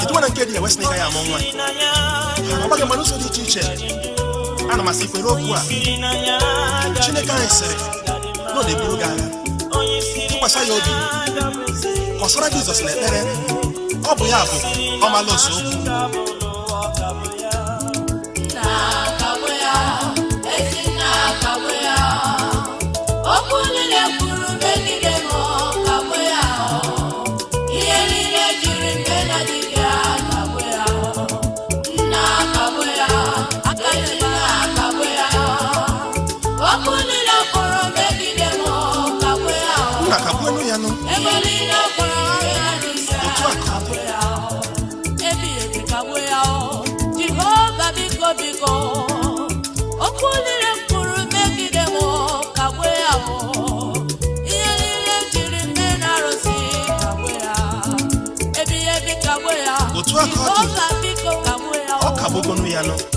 kedu na nke dị ya wesị na ịga ya amụ nwa ọgbaghị mmanụ ụzọ dị iche iche ana m asị kwere okwu a chineke anyị sịrị na ọ na-eburu gị agha tụkwasị ya obi kọsara Jizọs na ekpere ọ bụ ya bụ ọmalụ ose okwu colombiano.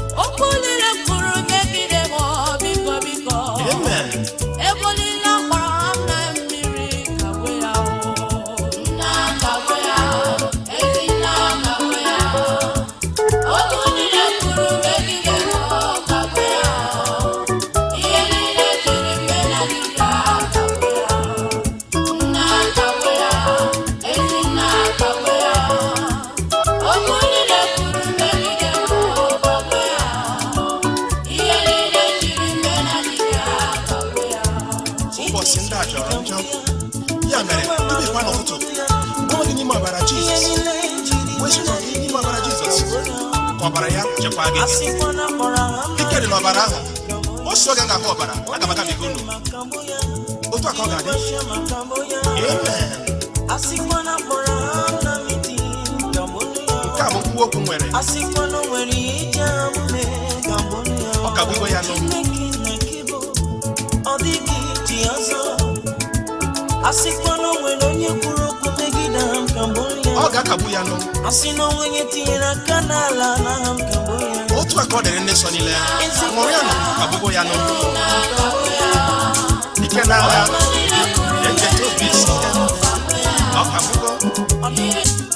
ọbara gị ike dị n'ọbara ahụ osi oge ga-akọ ọbara aga m agabiga unu otu a ka ọ ga-adị nke a bụ kwuo okwu nwere ọ ka bụgo ya n'okwu ọ ga-akagbu ya n'ụkwụ asị na onwe onye tinyere aka n'ala n'aha m kagbo Yesu akɔde ne sɔ ni lɛ ŋɔria no abobo ya no ike na ara yɛn jɛ tobi si ɔka bobo.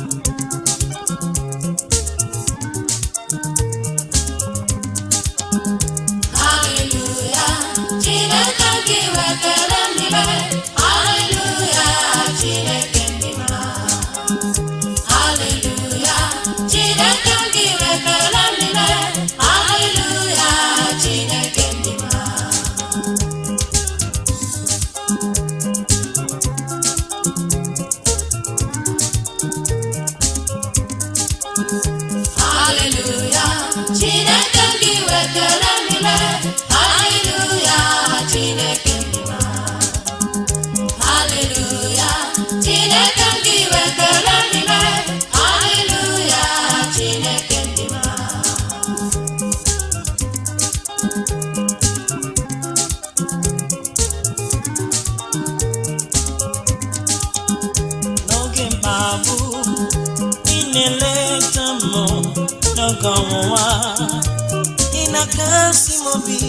Nancy Mobi,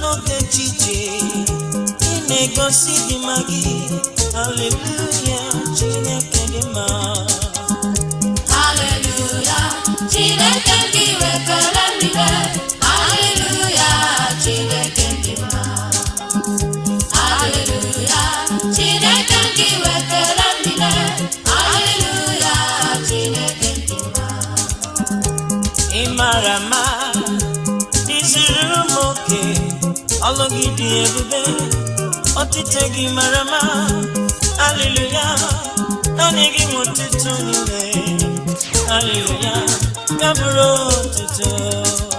n'oge ejije ine na na-egosi dị mma gị haleluya Chineke dị ebube ọtụtụ gị mara mma aleluya naanị gị nwe ọtụtụ niile aleluya ya bụrụ ọtụtụ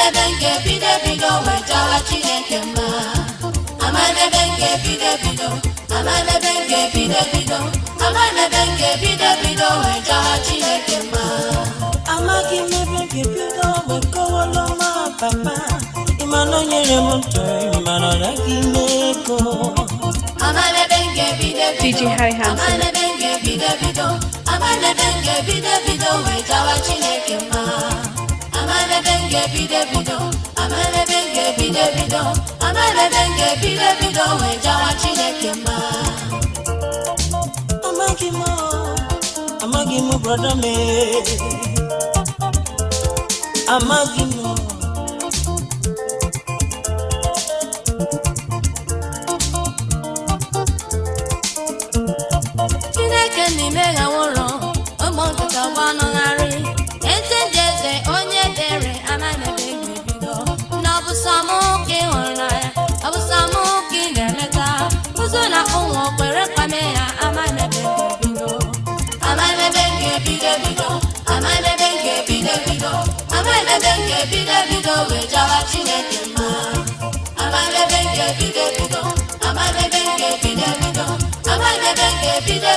amadebe m ga-ebido ebido wee chọwa chineke mma amadebe m ga-ebido ebido amadebe m ga-ebido ebido amadebe m ga-ebido ebido wee chọwa chineke mma amaghị m ebe m ga-ebido wee kọwala ọma papa ịmana o nyere m ntụrụ ịmana ọ naghị ime ego amadebe m ga-ebido ebido amadebe m ga-ebido ebido amadebe m ga-ebido ebido wee chọwa chineke mma amala denge g bide bido amala denge g bide bido amala denge g bide bido we jawa chineke ma amagi mo amagi mo brother me amagi mo chineke n'ime ha nwụrụ ụmụ nkịta gbanụgharị ụmụ kwere kpame ya amanebe ga nke bido ebido bido nke bido wee jawa Chineke ebido bido ebido bido nke bido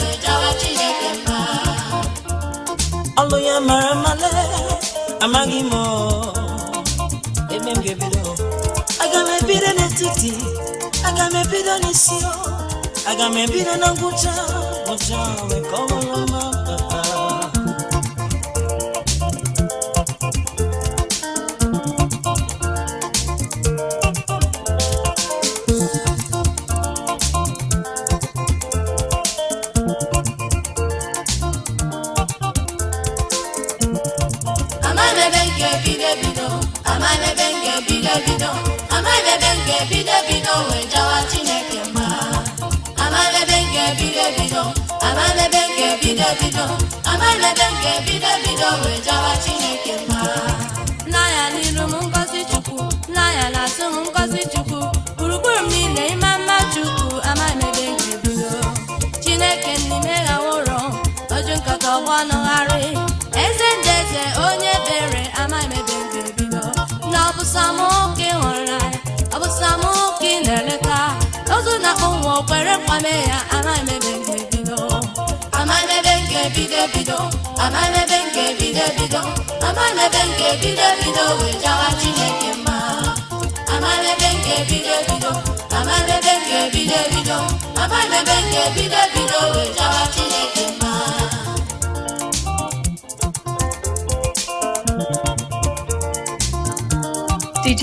wee jawa Chineke ọlụ ya mara male amaghị m ebe m ga aga m ebido n'etiti akamepida nisio akamepida nanguta mojawe komoloma papa Amane benge bide bido, amane benge bide bido, ebe nke bido ebe nke bido chineke mma nna ya m ngozi chukwu nna na m ngozi chukwu gburugburu niile ịma mma chukwu amalebe nke bido chineke n'ime ya ọjụ nkata ọgbọ nụgharị eze onye bere na eleta ozu na ụmụ okwere nkwame ya amalebe DJ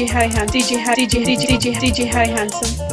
Hi DJ Hi, DJ, DJ, DJ, DJ Handsome.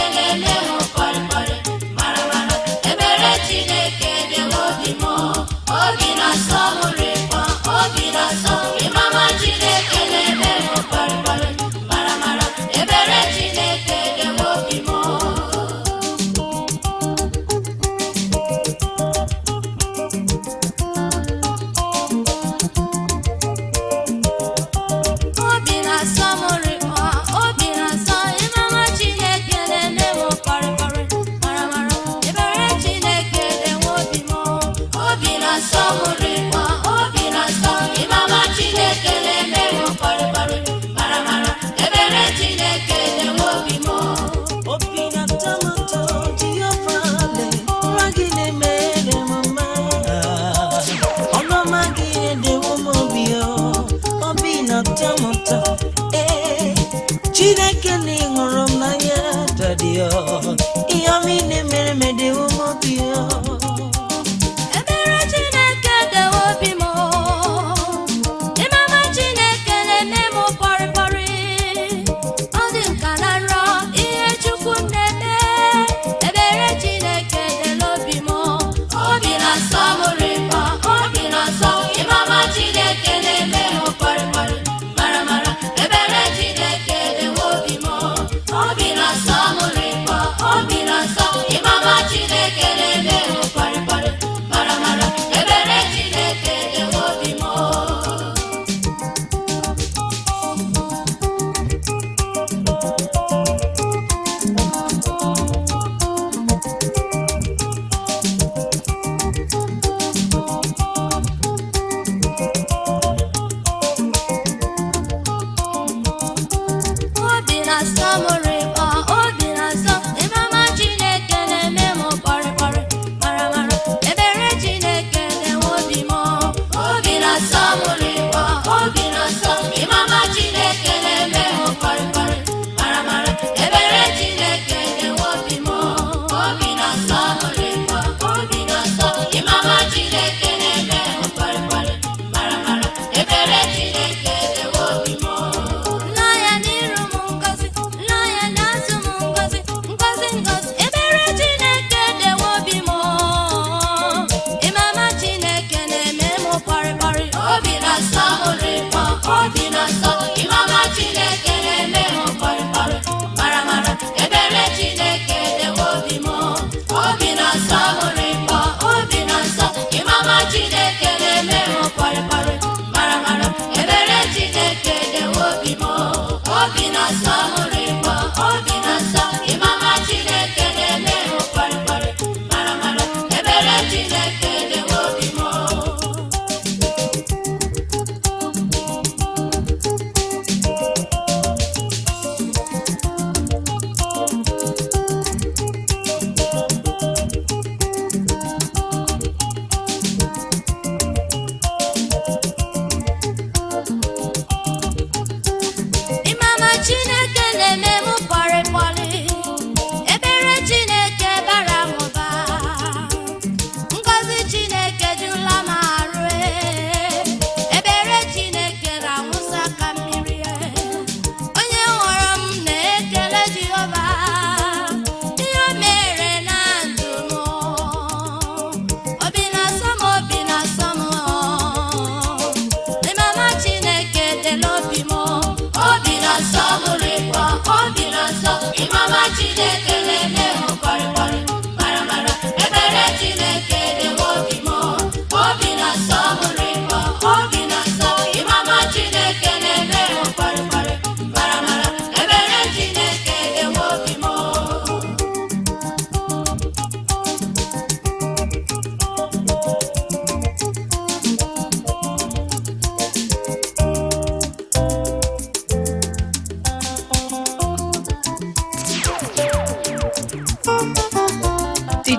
Pastor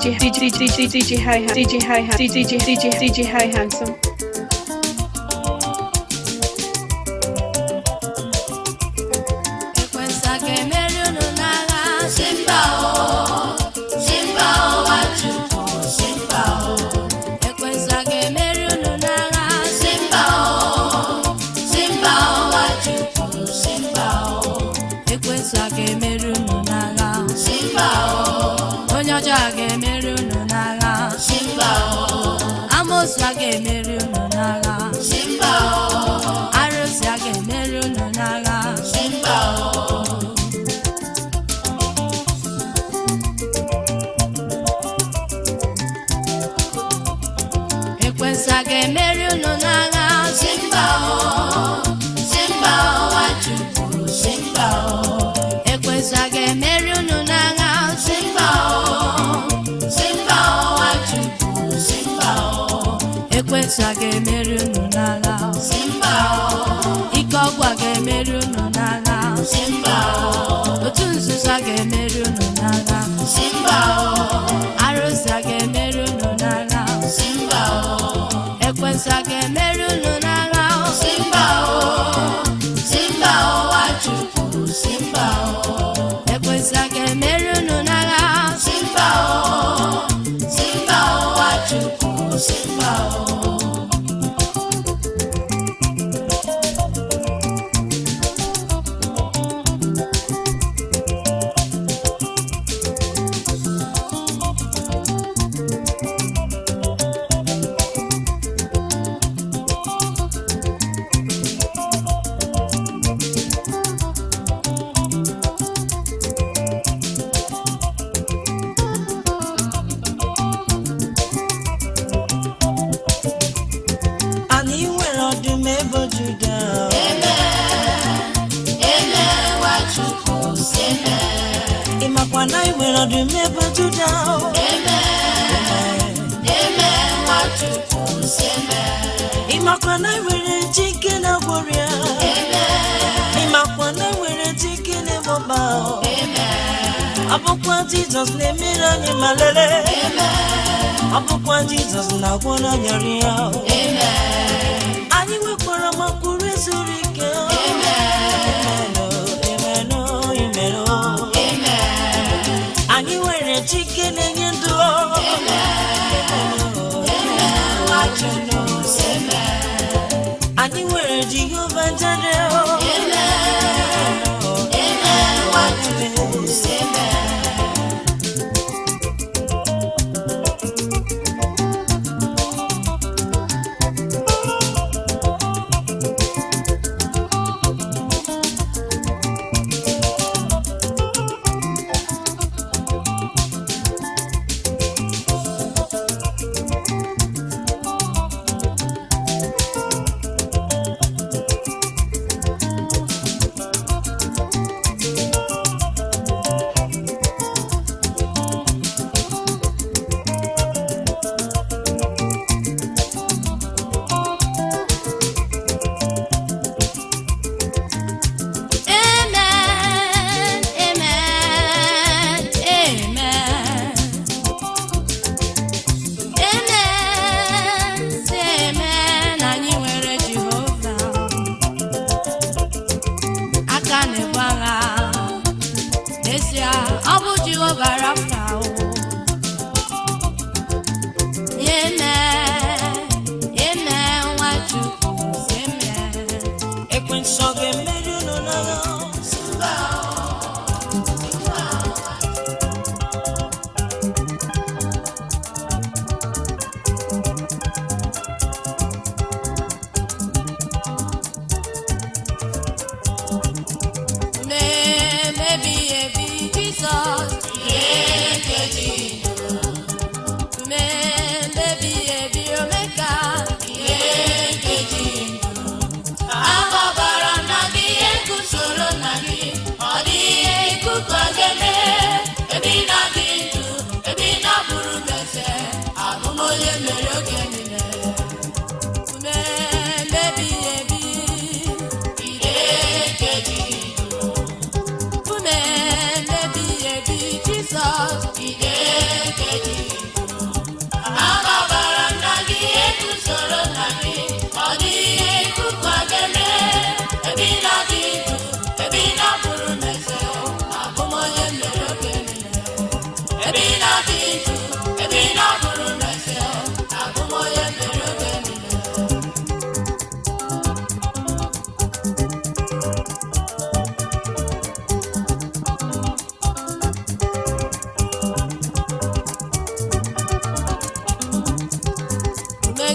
DJ DJ DJ DJ Hi DJ Hi DJ DJ DJ Hi Handsome Merununa ọbụkwa jizọs na-emere anyị ma lelee ọbụkwa jizọs na-agwọ n'anya rịa anyị nwekwara makwuru zuru ike anyị nwere chike na-enye ndụ anyị nwere jehova jere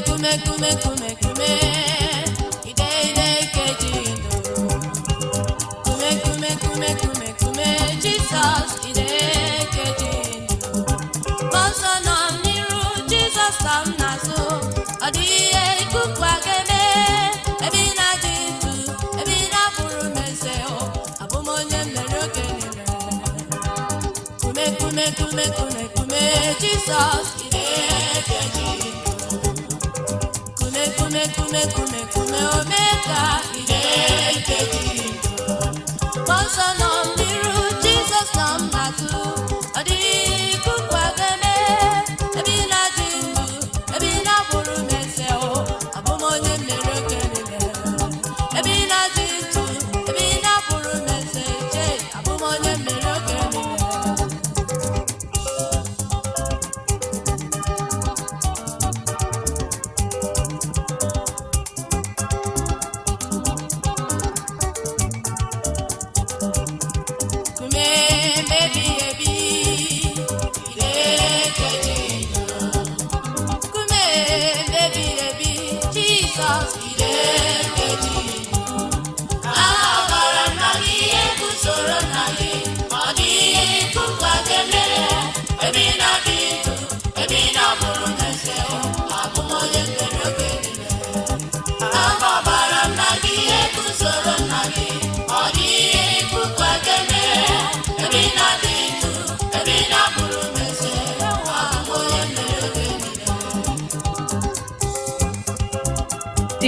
kume kume kume kume kume Jesus, ide keji. Jésù come mírú Jésù náà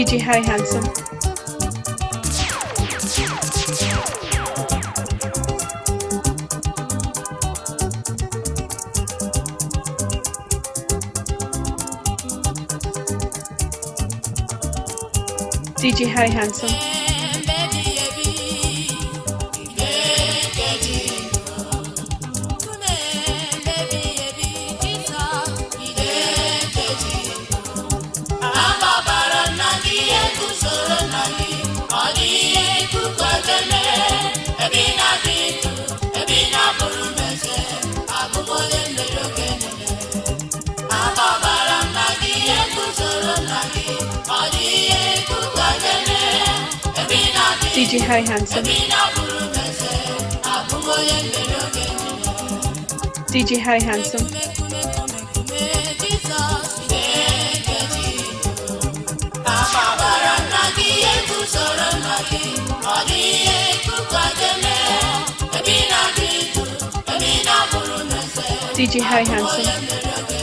DJ Harry Handsome. DJ Harry Handsome. Say hi, handsome. DJ Hi Handsome. DJ Hi Handsome.